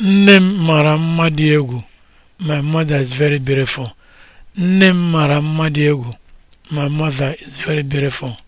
Nne m mara mma dị egwu. My is very beautiful. egwu. My mother is very beautiful.